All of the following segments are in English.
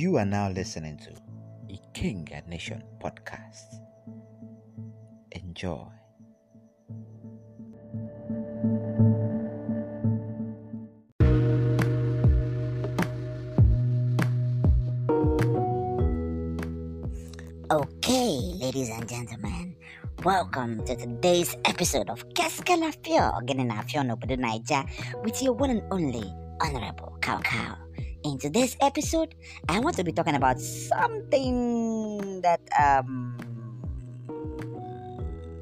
You are now listening to the King and Nation podcast. Enjoy. Okay, ladies and gentlemen, welcome to today's episode of Kaskala Fio, Genina Fio Nobudu Niger, with your one and only Honorable Cow Cow. In today's episode, I want to be talking about something that um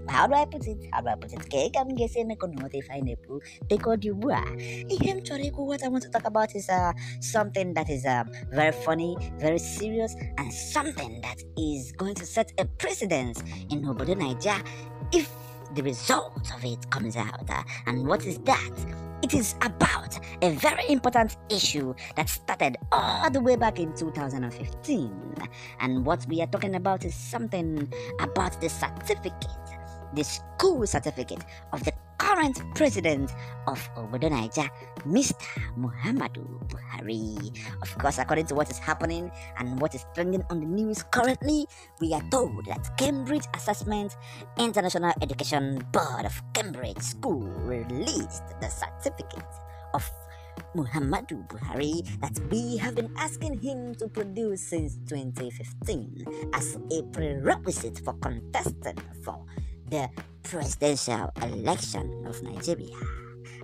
how do I put it? How do I put it? Okay, I'm guessing I could not define it because you were. I'm sorry, what I want to talk about is uh, something that is um, very funny, very serious, and something that is going to set a precedence in Obodo Nigeria if the result of it comes out. And what is that? It is about a very important issue that started all the way back in 2015. And what we are talking about is something about the certificate, the school certificate of the current president of Obodo Niger, Mr. Muhammadu Buhari. Of course, according to what is happening and what is trending on the news currently, we are told that Cambridge Assessment International Education Board of Cambridge School released the certificate of Muhammadu Buhari that we have been asking him to produce since 2015 as a prerequisite for contesting for the presidential election of Nigeria.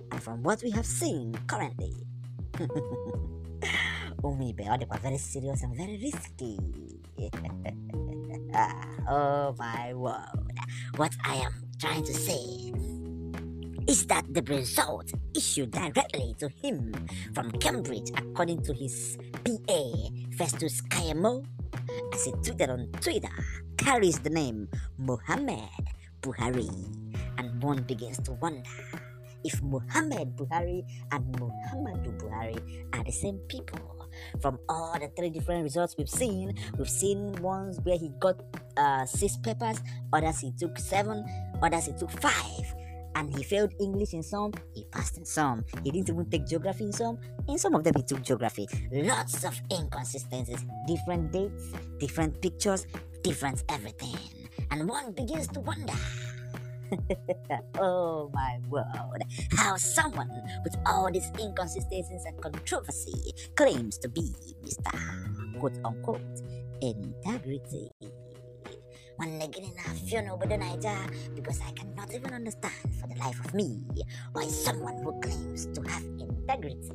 And from what we have seen currently, Umi Beode was very serious and very risky. oh my word. What I am trying to say is that the result issued directly to him from Cambridge, according to his PA, Festus kayemo as he tweeted on Twitter, carries the name Mohammed Buhari, and one begins to wonder if Muhammad Buhari and Muhammadu Buhari are the same people. From all the three different results we've seen, we've seen ones where he got uh, six papers, others he took seven, others he took five and he failed English in some, he passed in some. He didn't even take geography in some, in some of them he took geography. Lots of inconsistencies, different dates, different pictures, different everything. and one begins to wonder oh my word, how someone with all these inconsistencies and controversy claims to be Mr. quote unquote integrity. One again, I feel no better because I cannot even understand for the life of me why someone who claims to have integrity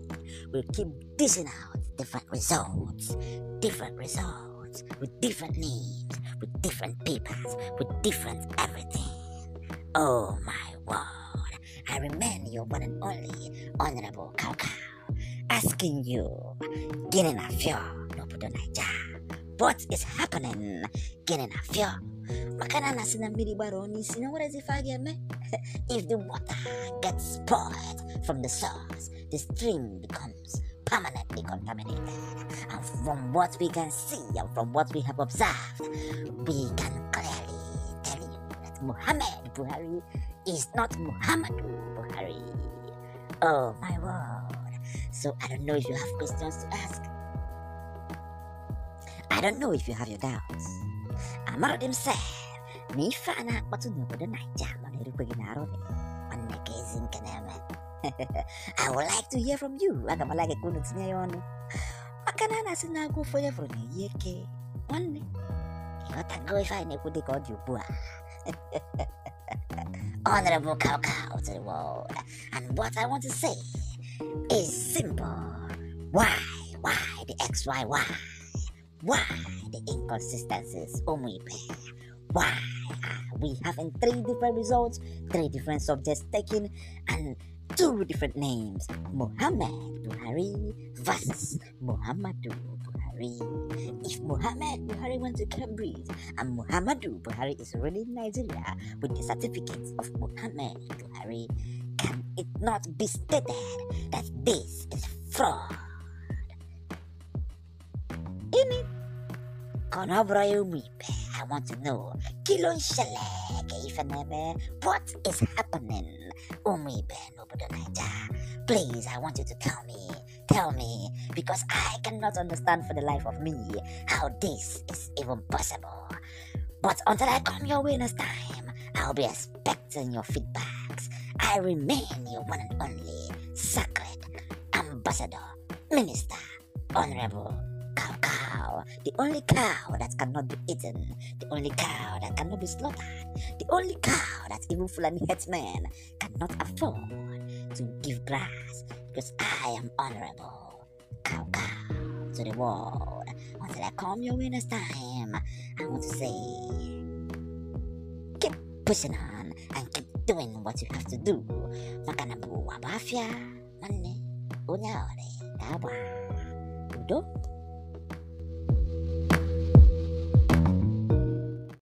will keep dishing out different results, different results. words, with different names, with different papers, with different everything. Oh my word, I remain your one and only Honorable cowcow, asking you, ginin a few, no put on What is happening? ginin a Makana na sina mbili baroni, sina what is if me? if the water gets poured from the source, the stream becomes permanently contaminated. And from what we can see and from what we have observed, we can clearly tell you that Muhammad Buhari is not Muhammadu Buhari. Oh my word. So I don't know if you have questions to ask. I don't know if you have your doubts. Amarodim said, Nifana watu nukodo na jama nirukwe ginarobe. nke na-eme. I would like to hear from you aga m like ka unu tinye ya ọnụ maka na a na-asị na agụ ofe onye fụrụ na-eyi eke nwanne ịghọtago ife anyị na-ekwu dịka ọ dị ugbu a Honorable Cow Cow to the world. And what I want to say is simple. Why? Why the X, Y, Y? Why the inconsistencies, Omuipe? Why are we having three different results, three different subjects taken, and two different names Muhammad Buhari versus Muhammadu Buhari. If Muhammad Buhari went to Cambridge and Muhammadu Buhari is already Nigeria with the certificates of Muhammad Buhari, can it not be stated that this is fraud? In it, Konobrayo I want to know, Kilon Shalek, what is happening? Umi Beno Naija, please, I want you to tell me, tell me, because I cannot understand for the life of me how this is even possible. But until I come your way next time, I'll be expecting your feedbacks. I remain your one and only sacred ambassador, minister, honorable cow cow, the only cow that cannot be eaten, the only cow that cannot be slaughtered, the only cow that even Fulani herdsmen cannot afford to give grass because I am honorable. Cow cow to the world until I come your way next time. I want to say, keep pushing on and keep doing what you have to do. Makanabu wabafia, money, unyore, kaba, udo.